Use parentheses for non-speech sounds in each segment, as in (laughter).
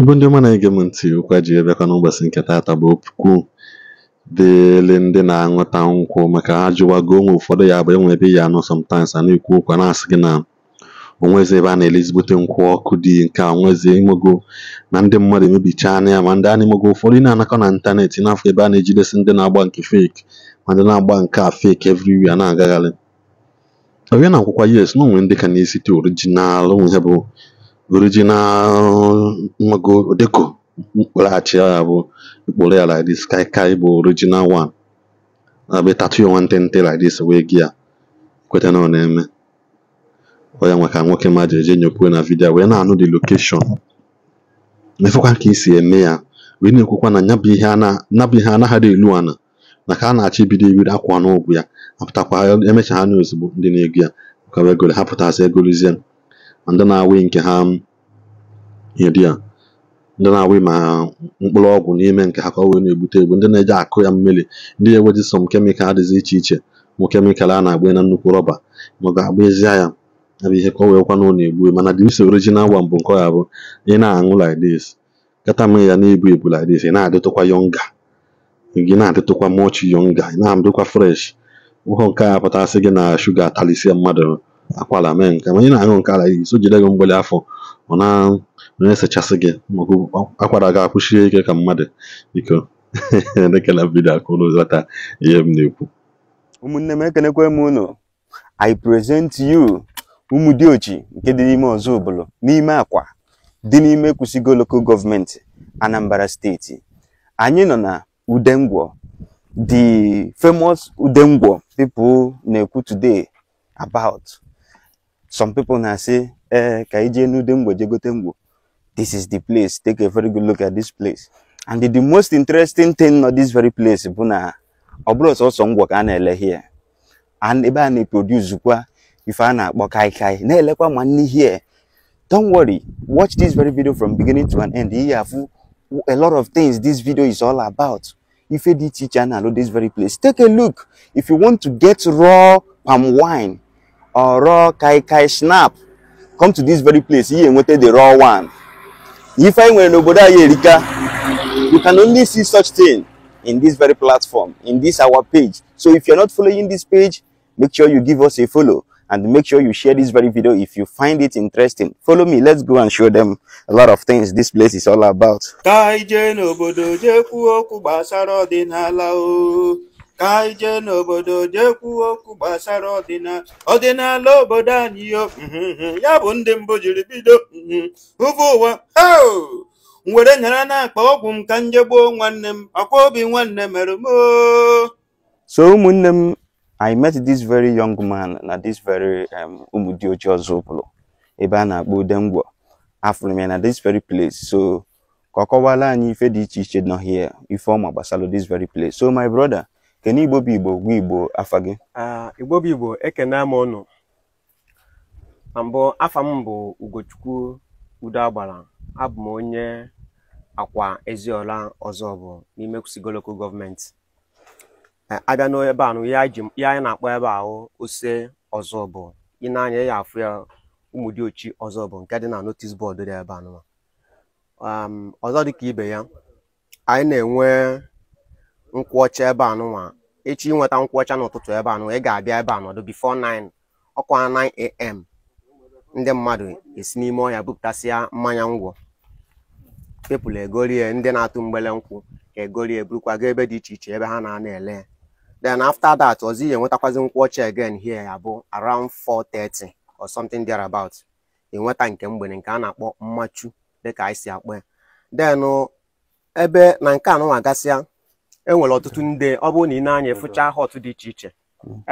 Igbo ndị ọma na-ege m ntị ụkwa ji bịakwa n'ụbọchị nke taata bụ okwu dịịrị ndị na-aṅụta nkwụ maka ha jụwago onwe ụfọdụ ya bụ ebe ya anọ sometimes a na-ekwu ụkwa na-asị gị na onwezi ebe a na elezibute nkwụ ọkụ dị nke a onwezi na ndị mmadụ emebichaa ya ma ndị a na-emego ụfọdụ na-anakọ na ntanetị n'afọ ebe a na-ejidesi ndị na-agba nke fake ma ndị na-agba nke a fake everywhere na-agagharị Onye na akwụkwọ yes na onwe ndị ka na-esite orijinal onwe ha bụ guruji na go deko mkpụrụachi ya bụ mkpụrụ ya like this kai kai bụ original one na-abịa tatu ya nwantịntị like this wee gi ya kweta na ọ na-eme ọ ya nwa ka nwoke ma eje nyopue na vidio wee na-anụ the location mefekwa ka esi eme ya wee na-ekwukwa na nyabụ ihe anaghị elu ana na ka a na-achọ ibido ibiri akwa n'ụgwụ ya apụtakwa emechaa ha n'ozugbo ndị na-ego ya ka wee goro ha pụtasị egolizie ndị na-awị nke ha ihe dị ya ndị na-awị ma mkpụrụ ọgwụ n'ime nke ha ka ọ wee na-egbute egbu ndị na-eji akụ ya mmiri ndị na enweji som kemịkal dịzi iche iche mụ kemịkal a na-agba na nnukwu rọba ma ọ ga-agbazia ya ya abụ ihe ka ọ wee ọ na-egbu mana dị isi original one mbụ nke ọ ya bụ ị na-aṅụ like kata mee ya na-ebu ebu like ị na-adịtụkwa yonga gị na-adịtụkwa mochi yonga ị na adịkwa fresh ụhọ nke a pụtasị gị na shuga atalisia mmadụ akwala mee nke ma onye na-aṅụ nke ala iso jide gị mgbali afọ ọ na na-esechasị gị maọbụ akwara gị akwụsie ike ka mmadụ biko (laughs) ekele vidio akụrụ ghọta ihe m na-ekwu ụmụnne m ekenekwe m ụnụ i present you ụmụ dị diochi nke dị n'ime ọzọ obodo n'ime akwa dị n'ime kwụsịgo lokal gọọmenti anambra steeti anyị nọ na udengwọ the famous udengwo people na-ekwu today about some people now say eh ka ije nude mgbo this is the place take a very good look at this place and the, the most interesting thing not this very place bụ na ọ bụrụ sọsọ ngwọ ka ele here and ebe a na-eproduce kwa ife a na kai, kaikai na-elekwa ma nne here don't worry watch this very video from beginning to an end Here, afụ a lot of things this video is all about If you did teach a na this very place take a look if you want to get raw palm wine or raw kai kai snap come to this very place ihe enweta the raw one ife anyị nwere nobody here, erika you can only see such thing in this very platform in this our page so if you're not following this page make sure you give us a follow and make sure you share this very video if you find it interesting follow me let's go and show them a lot of things this place is all about ka anyị jee n'obodo jee okwu gbasara ọdịnala obodo anyị mhm, ya bụ ndị mbụ jiri bido mhm, ụbụ ụwa were nyara na-akpa ọgwụ m ka njegbuo nwanne m akwa obi nwanne mere m so ụmụnne m I met this very young man na this very Umudiuchi Ozubulu ebe a na-akpọ Udemgbo afụrụ m ya na this very place so ka ọ kọwala anyị ife dị iche iche nọ here ife ọma gbasara this very place so my brother kedu igbo bụ igbo gwa igbo afa gị igbo bụ igbo ekene m ọnụ. na mbụ afa m bụ ugochukwu udo agbara abụ m onye akwa eziola ọzọ bụ n'ime kusigoloko gọọmenti abịa n'ebe a ya anyị na-akpọ ebe ahụ ose ọzọ bụ ị na-anya ya afụ ya ụmụ dị ọzọ bụ nke dị na notis bọọdụ dị ebe anụ. ọzọ dị ka ibe ya anyị na-enwe ọcha ebe a nụnwa echi ịnweta ọcha n'ụtụtụ ebe anụnwa ị ga-abịa ebe a nọdụ bifo 9 ọkwa 9am ndị mmadụ esi n'ime ọhịa bupụtasịa mmanya ngwọ pepụl egorie ndị na-atụ mgbele nkwụ ka egorie burukwa ga ebe dị iche iche ebe ha na-ana ele then after that ọzọ ihe enwetakwazi ọcha again here ya bụ around 4:30 or something thereabout enweta nke mgbede nke a na-akpọ mmachu dịka anyị si akpọ ya then ebe na nke anụnwa gasịa enwere ọtụtụ ndị ọ bụrụ na ị na-anya efụcha hot dị iche iche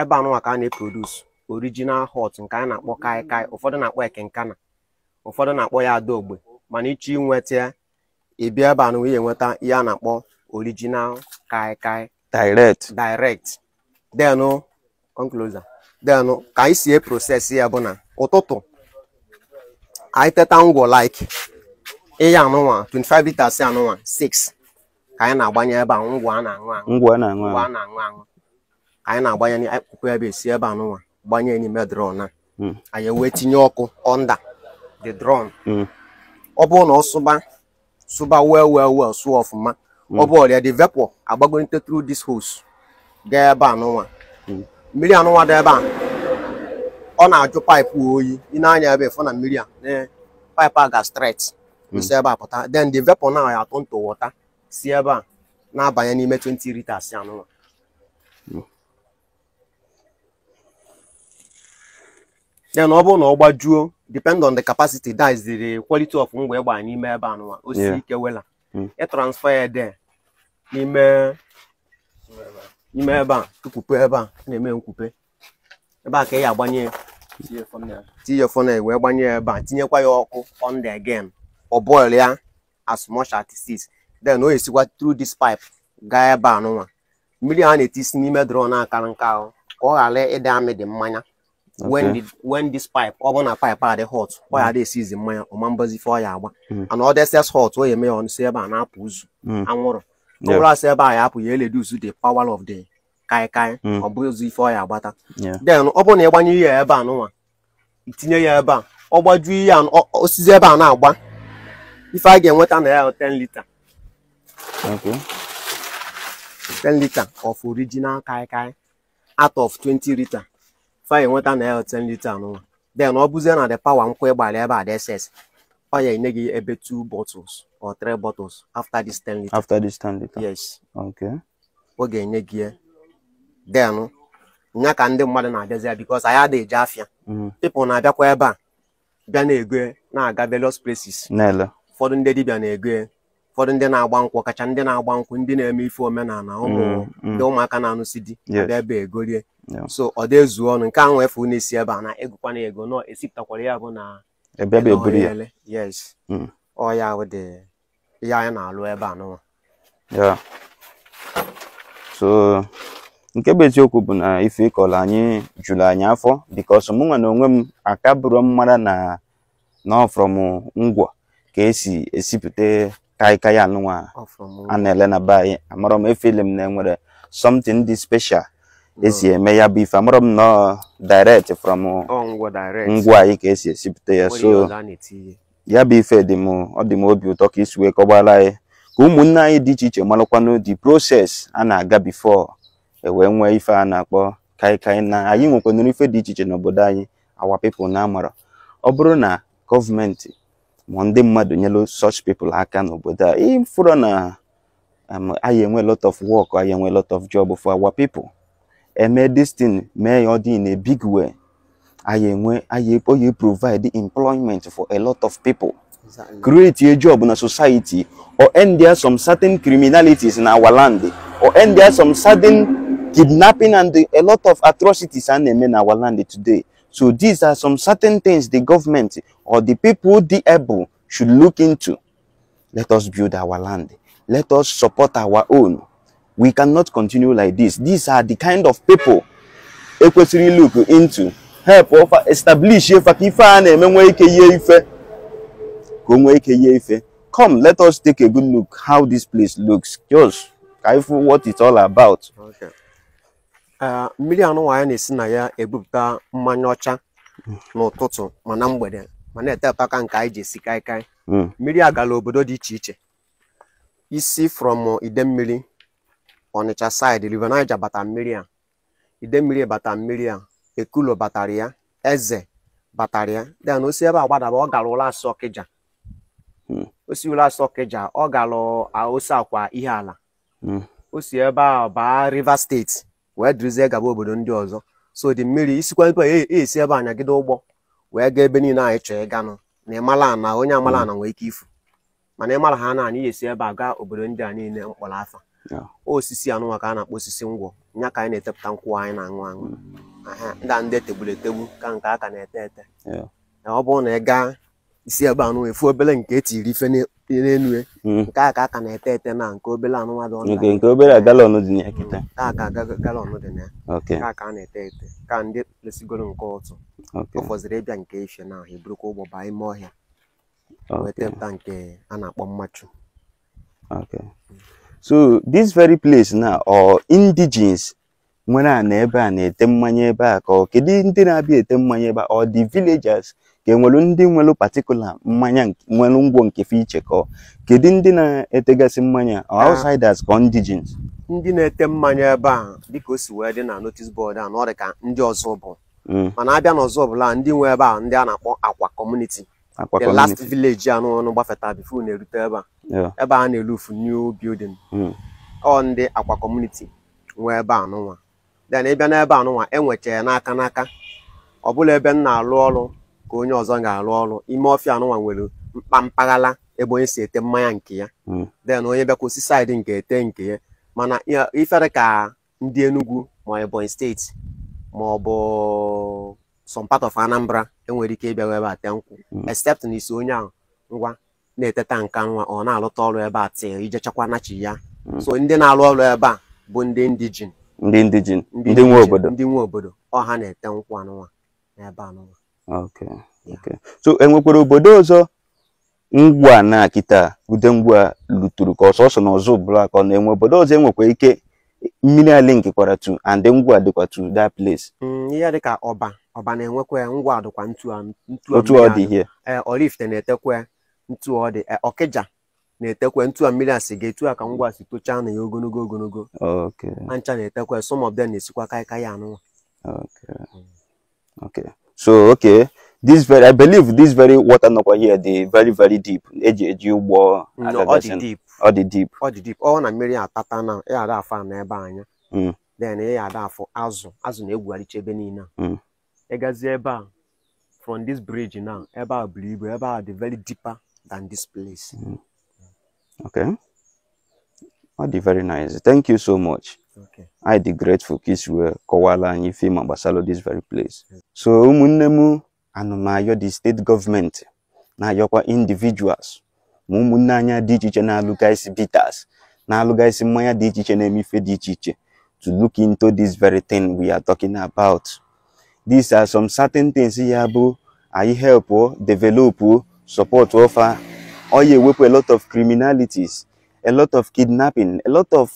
ebe anụnwa ka a na-eprodus orijinal hot nke a na-akpọ kai kai ụfọdụ na-akpọ ekenkana ụfọdụ na-akpọ ya adaogbe mana iche inweta ibi ịbịa ebe anụnwa ihe enweta ihe a na-akpọ orijinal kai kai direct direct denụ oncloser ka anyị si eprosesi ya bụ na ụtụtụ anyị teta ngwọ like ịya anụnwa 25 liters anụnwa 6 ka anyị na-agbanye ebe a ngwa a na-aṅụ aṅụ ngwọ a na-aṅụ aṅụ anyị na-agbanye akpụkpọ ebe esi ebe anụnwa gbanye n'ime drọn a hmm. anyị wee tinye ọkụ ọnda the drọn hmm. ọ bụrụ na ọ sụba sụba well well well sụọ ọfụma hmm. ọ bụ ọrịa the vapor agbagonite through this hose gaa ebe anụnwa mmiri anụnwa dị ebe a ọ na-ajụ paịpụ oyi ị na-anya ebe ịfụ na mmiri a paịpụ a ga stret esi ebe a pụta then the vapor na ya atụ ntụ wọta si ebe a na-abanye n'ime 20 liters anụnwa then ọ bụrụ na ọ gbajuo depend on the capacity that is the quality of ngwa ịgba n'ime ebe anụnwa o si ike wela e transfer ya de n'ime n'ime ebe a tukwupe ebe a na-eme nkwupe ebe a ka ị ya agbanye tinye funnel wee gbanye ebe a tinyekwa ya ọkụ on the again ọ bọil ya as much as 6 then o esikwa tru this pipe gaa ebe anụnwa mmiri a na-etisi n'ime drọn akara nka ahụ ka ọ ghara ịdị amị dị mmanya when this pipe ọ bụrụ na pipe adị hot ọ ya esizi mmanya ọma mbazi fe ọ ya agba ana ọ deses hot o ya eme ya ebe a na-apụ ụzụ anwụrụ ọ bụrụ asị ebe a ya apụ ya eleduzu the power of the kaikai ọ bụzi ife ọ ya agbata then ọ bụrụ na ịgbanye ihe ya ebe a nụnwa itinye ya ebe a ọ gbajuo ihe osizi ebe a na-agba ife a ga-enweta na ya 10 lita Okay. 10 liter of original kai kai out of 20 liter. fa enweta na ya 10 liter n'ụwa. Then ọ bụzie na the power nkwụ ịgbalị ebe a ss ọ ya enye gị ebe 2 bottles or 3 bottles after this 10 liter. After this 10 liter. Yes. Okay. Ọ ga-enye gị ya. Then nya ka ndị mmadụ na-abịazi because anyị adịghị eje afịa. Mm-hmm. People na-abịakwa ebe a bịa na-ego na-aga various places. Ụfọdụ ndị dibịa na-ego ụfọdụ ndị na-agba nkwụ kacha ndị na-agba nkwụ ndị na-eme ife omenala ụmụ mm, mm. ndị ụmụaka na-anụsi di abịa ebe egorie so ọ dị ezu ọnụ nke ahụ efu n'isi ebe a na egokwana ego nọ esipụtakwara ya bụ na ele mm. ọ ya dị ihe anyị na-alụ ebe a n'ụwa so nke bụ eziokwu bụ na ife ịkọrọ anyị juru anyị afọ bikos mụnwa na onwe m aka bụrụ m mara na na ọfrọm ngwọ ka esi esipụta ka anyị ka anụnwa a na-ele na be anyị amarọ m efeli m na enwere something dị special esi hmm. eme ya bụ amarọ m nọ direct from ngwa anyị ka esi esipụta ya so ya bụ ife dị m ọ dị m obi ụtọ ka isi wee kọgbara anyị ka ụmụnne anyị dị iche iche marakwanụ the process a na-aga before e wee nwee ife a na-akpọ kaikai na anyị nwekwanụrụ ife dị iche iche n'obodo anyị awa people na amara ọ bụrụ na gọọmenti ma ndị mmadụ nyelu such people aka uh, uh, um, n'obodo a ịfụrụ na anyị enwe lot of work anyị enwe lot of job for our people eme this thing mee ya ọ dị in a big way anyị enwe anyị oyi provide employment for a lot of people create a job na society or end there some certain criminalities in our land or end there some certain kidnapping and a lot of atrocities a na-eme na our land today So these are some certain things the government or the people, the able, should look into. Let us build our land. Let us support our own. We cannot continue like this. These are the kind of people ekwesịrị look into help ọfa establish ife ka come let us take a good look how this place looks just careful what it's all about. Okay. mmiri ya na-esi na ya ebupụta mmanya ọcha n'ụtụtụ ma na mgbede ma na-etepụta aka nke anyị ji esi kaikai hmm. mmiri agala obodo dị iche iche isi from mmiri Ọnịcha saịdị River Niger bata mmiri a mmiri bata mmiri a Ekulo batara ya Eze batara ya then o si ebe a gbadaba ọ gara ụlọ asọ hmm. ụlọ asọ ọ gara akwa ihe ala hmm. osi ebe a baa Rivers steeti wee dirizie gaba obodo ndị ọzọ so dị mmiri isikwa ipe esi ebe anyagide ụgbọ wee gaa ebe niile anyị chọọ ịganụ na ịmala na onye amala ana nwee ike ifu mana ịmara ha na anyị esi ebe a gaa obodo ndị a niile mkpọrọ afa osisi anụnwa ka a na-akpọ osisi ngwọ nya ka anyị na-etepụta nkwụ anyị na-aṅụ aṅụ mm. ndị a ndị e tegburu etegbu ka nke aka na-ete ete ọ bụrụ na ị gaa isi ebe anụnwa efu obere nke etiri ife n'elu hmm. nke a ka aka na-ete ete na nke obere anụnwa dị ọnụ nke obere galọn dị na kịta aka galọn dị na ya ka a na-ete ete ka ndị lesigoro nke ụtụ ụfọdụ fọziri ịbịa nke ife na ahụ eburukwa ụgbọ baa ime ọhịa wetepụta nke a na-akpọ mmachu so this very place na ọ indigens nwere a na ebe a na-ete mmanya ebe a ka ọ kedu ndị na-abịa ete mmanya ebe a ọ dị villagers ka enwelu ndị nwelu patikula mmanya nwelu ngwo nke fiche kedu ndị na-etegasị mmanya ah. outsiders ka indigens ndị na-ete mmanya ebe a dịka o si wee dị na notice board a na ka ndị ọzọ bụ hmm. mana abịa n'ọzọ ọbụla ndị nwe ebe a ndị a na-akpọ akwa community the last village a n'ụlọ gbafeta bifo na-erute ebe a ebe a na-elufu new building hmm. ọ ndị akwa community nwe ebe anụnwa then ịbịa n'ebe e n'aka n'aka ọ ebe m na-alụ ọrụ ka onye ọzọ ga-arụ ọrụ ime ọfịa anụnwa nwere mkpa mpaghara ebe onye si ete mmanya nke ya den hmm. onye bịakwụsị saịdị nke ete nke ya mana ifere ka ndị Enugu ma Ebonyi steeti ma ọ bụ of Anambra enwere ike ịbịa ebe a tee nkwụ hmm. except na isi onye ahụ ngwa na-eteta nka nwa ọ na-alụta ọrụ ebe a tee ije chekwa nachi ya hmm. so ndị na-arụ ọrụ ebe a bụ ndị ndijin. ndị ndijin ndị nwe obodo ndị nwe obodo ọha na-ete nkwụ anụnwa n'ebe anụnwa Okay. Okay. So enwekwara obodo ọzọ ngwa na kịta ude ngwa luturu ka ọsọsọ na ọzọ blak ọ na-enwe obodo ọzọ enwekwa ike mmiri ala nkekwara tu and ngwa dịkwa tu that place. Mm, ihe dịka ọba ọba na-enwekwa ngwa dịkwa ntu um, otu e, ọ dị ihe Oraifite na-etekwa ntu ọ dị Ọkịja na-etekwe ntu a mmiri asị ga etu a ka ngwa si tochaa na ya ogologo ogologo ancha na-etekwe some of them na-esikwa kaịkaị anụnwa so okay this very i believe this very water nọkwa here dị very very deep eji eji ugbo mm, ọ dị deep ọ dị deep ọ na mere atata na ya ada na n'ebe anya mm. then ya ada afọ azụ azụ na-egwugharịcha ebe niile mm. ịgazi ebe a from this bridge now ebe a buru ebe a dị very deeper than this place okay oh dị very nice thank you so much I dey grateful ka were wee and anyị ife ma this very place so ụmụnne m anụmayọ di steeti gọọmenti na-ayọkwa individuals ma ụmụnne anya dị iche iche na-alụgasị bitters na-alụgasị mmanya dị iche iche na emife dị iche iche to look into this very thing we are talking about these are some certain things ya bụ anyị help develop support ofa ọ ewepụ a lot of criminalities a lot of kidnapping a lot of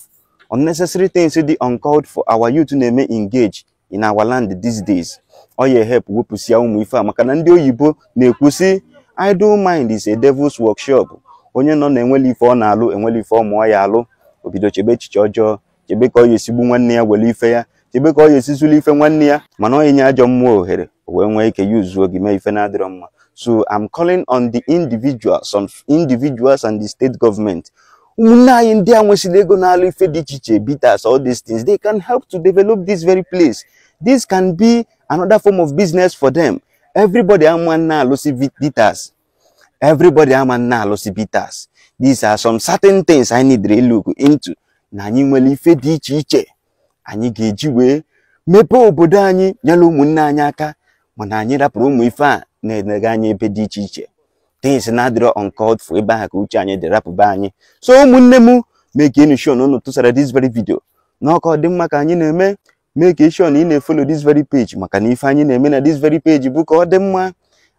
unnecessary things dị uncalled for our youth na-eme engage in our land these days ọ ya help wepụsịa ụmụ ife a maka na ndị oyibo na-ekwusi idle mind is a devil's workshop onye nọ na-enweli ife ọ na-alụ enweli ife ọ mụọ ya alụ obido chebe echiche ọjọọ chebe ka ọ ya esigbu nwanne ya were ife ya chebe ka ọ ya esizuli ife nwanne ya mana ọ enye ajọ mmụọ ohere wee nwee ike ya uzuo gị mee ife na-adịrọ mma so i'm calling on the individuals on individuals and the state government ụmụnne anyị ndị a nwesịrị ego na-alụ ife dị iche iche bitas all these things they can help to develop this very place this can be another form of business for them everybody ama na-alụsi bitas everybody ama na-alụsi bitas. these are some certain things anyị need to look into na anyị nwere ife dị iche iche anyị ga-eji wee mepee obodo anyị nyere ụmụnne anyị aka mana anyị rapụrụ ụmụ ife a na-enega anyị ebe dị iche iche things na-adịrọ uncalled for ebe ahụ ka uche anyị dị rapụba anyị so ụmụnne m mee ka enu shon unu tụsara this very video n'ọka ọ dị mma ka anyị na-eme mee ka eshon ị na-efolo this very page maka na ife anyị na-eme na this very page bụ ka ọ dị mma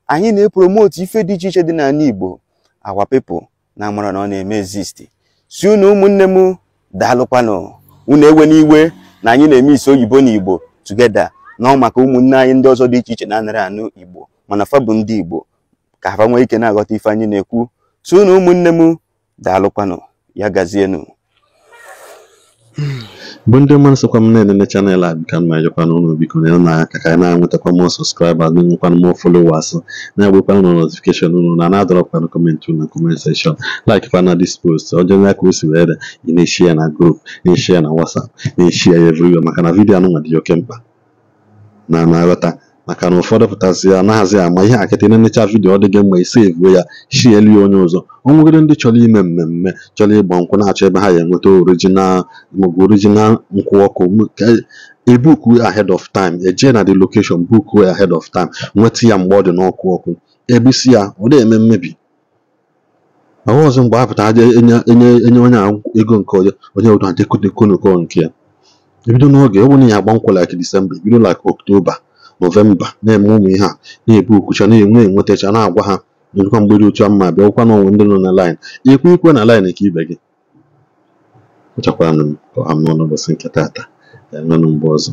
anyị na-epromote ife dị iche iche dị n'ala Igbo awa people na amara na ọ na-eme exist si unu ụmụnne m daalụkwanụ unu ewe n'iwe na anyị na-eme isi oyibo na Igbo na ọ maka ụmụnne anyị ndị ọzọ dị iche iche na-anara anụ Igbo mana fa ndị Igbo ka ha nwee ike na-aghọta ife anyị na-ekwu so na ụmụnne m daalụkwanụ ya gazienụ bụ ndị mmadụ sokwa m na enene chanel a bika ma ụlọ biko nyere na aka ka na-enwetakwa m sọskraibas na-enwekwana m folowas na-agbakwana ụlọ notifikeshon ụlụ na na-adọrọkwana kọmentị na kọment sekshọn laik pana dis post ọjọọ ndị aka o si were na-eshi ya na grup na-eshi ya na wasap na-eshi ya evriwe maka na vidiyo anụnwa dị oke mkpa na na-aghọta maka na ụfọdụ pụtazi ya anaghịzi ama ihe akịtị na nnecha vidiyo dị gị mma i sevuo ya shielie onye ọzọ onwegoro ndị chọrọ ime mmemme chọrọ ịgba nkwụ na-achọ ebe ha ya enweta original maọbụ orijinal nkwụ ọkụ ebuku ahead of time eje na the location book way ahead of time nweta ya mgbe ọ dị n'ọkụ ọkụ ebisi ya ọ na-eme mmebi ahụ ọzọ mgbe apụta pụta aja enye onye a ego nke onye onye odo adịkodekonoko nke ya ebido n'oge ọ bụ na ya agba nkwụ disemba ebido like Nọvemba na-eme ụmụ ihe a na-ebu okwucha na-enwe enwetacha na-agwa ha nọdụkwa mgbede otu a mma ụkwụ n'ọnwụ ndị nọ na laịn ikwu ikwe na laịn ka ibe gị ọchakwanụ m ọha m n'ọnụ nke tata ya ọzọ